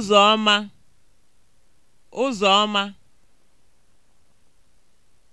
ụzọ ọma ụzọ ọma